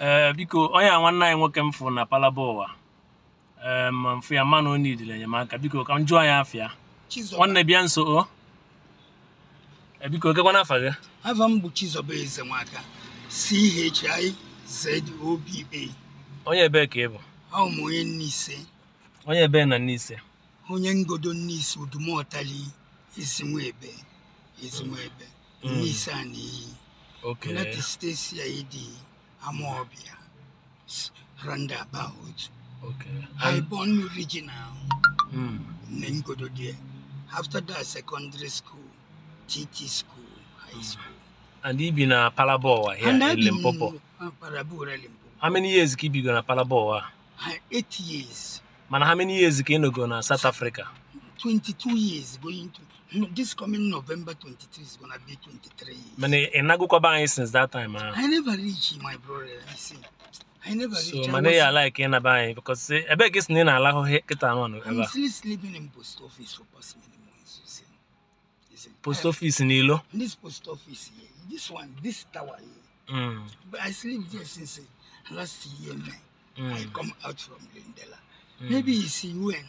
ee eh, biko onye a nwanne anyị nwoke m fụ na palaba ụwa ee eh, ma mfụ ya mana ọ nidiri enyemaka biko ka m jụọ ya afịa nwanne bịa nso o eh, biko gakwana afa gị afa m bụ Chizoba Ezenwaka CHIZOBA onye ebe ka ị bụ ahụ onye Nneise onye ebe na Nneise onye ngodo Nneise Udumotali Ezinwebe Ezinwebe mm. Nneise a na-eyi United States ya ịdị Randa roundabout. Okay. I born original. regional. Mm. Then After that, secondary school, TT school, high hmm. school. And he been a Palaboa here and in Limpopo. Parabura, Limpopo. How many years keep you gonna Palaboa? Uh, eight years. Man, how many years can you go to South Africa? 22 years going to this coming November 23 is gonna be 23 years. Man, I e I go Kobain e since that time. Huh? Ah. I never reach my brother. You see. I never so reach. So money I like in a buy e, because I beg his name allow get on. I'm still sleeping in post office for past many months, you see. Post office in Ilo? This post office here. This one, this tower here. Mm. But I sleep there since eh, last year, man. Mm. I come out from Lindela. Mm. Maybe you see when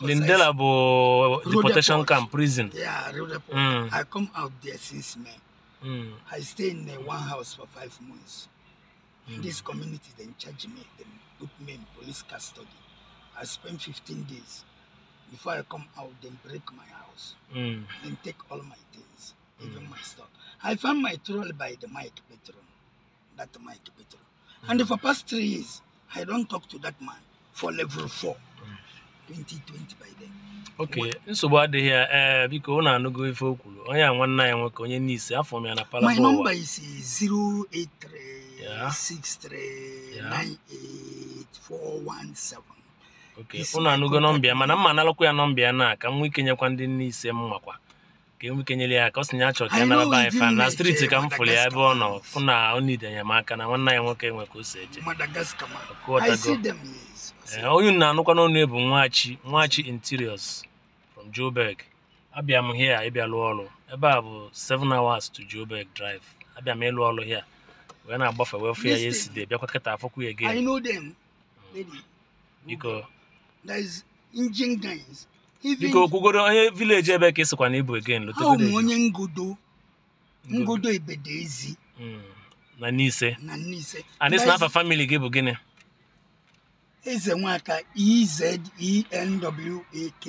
Lindela bo deportation camp, prison. Yeah, mm. I come out there since May. Mm. I stay in uh, one house for five months. Mm. This community then charge me, they put me in police custody. I spent 15 days. Before I come out, they break my house mm. and take all my things, even mm. my stuff. I found my troll by the Mike Petron, that Mike Petron. And mm. for past three years, I don't talk to that man for level four. Mm. 2020 by then. nsogbu adịghị ya ee eh, biko ọ na-anụgo ife o kwuru onye a nwanne nwoke onye n'isi afọ m ya na palabụwa my isi is 08363984117 eh, oke na anụgo nọmba ya mana mma analụkwa ya nọmba ya na ka m nwee ike nyekwa ndị n'ise m makwa ka emekenyere ya ka ọ sị na ya ka ya nara be fan na striti ka m fụrụ ya ebe ọ nọ fụ na ọ nide enyemaka na nwanne ya nwoke nwe ka o si eje eh, onye na-anụkwa n'ọnụ bụ nwachi nwachi interiors from Joburg abịa m here ịbịa lụọ ọrụ ebe a bụ 7 hours to Joburg drive abịa m ịlụ ọrụ here wee na-agbafe wee fụ ya ya esi de bịakwa kịta afọkwu ya gị biko biko kwugoro onye vileji ebe ka ịsịkwa na ịbụ egen ọ ụmụ onye ngodo ngodo ebede ezi hmm. na nise na nise and na afa family gị bụ gịnị eze nwaka ezewak